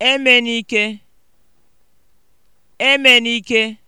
Emenike, Emenike